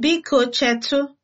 Biko chetụ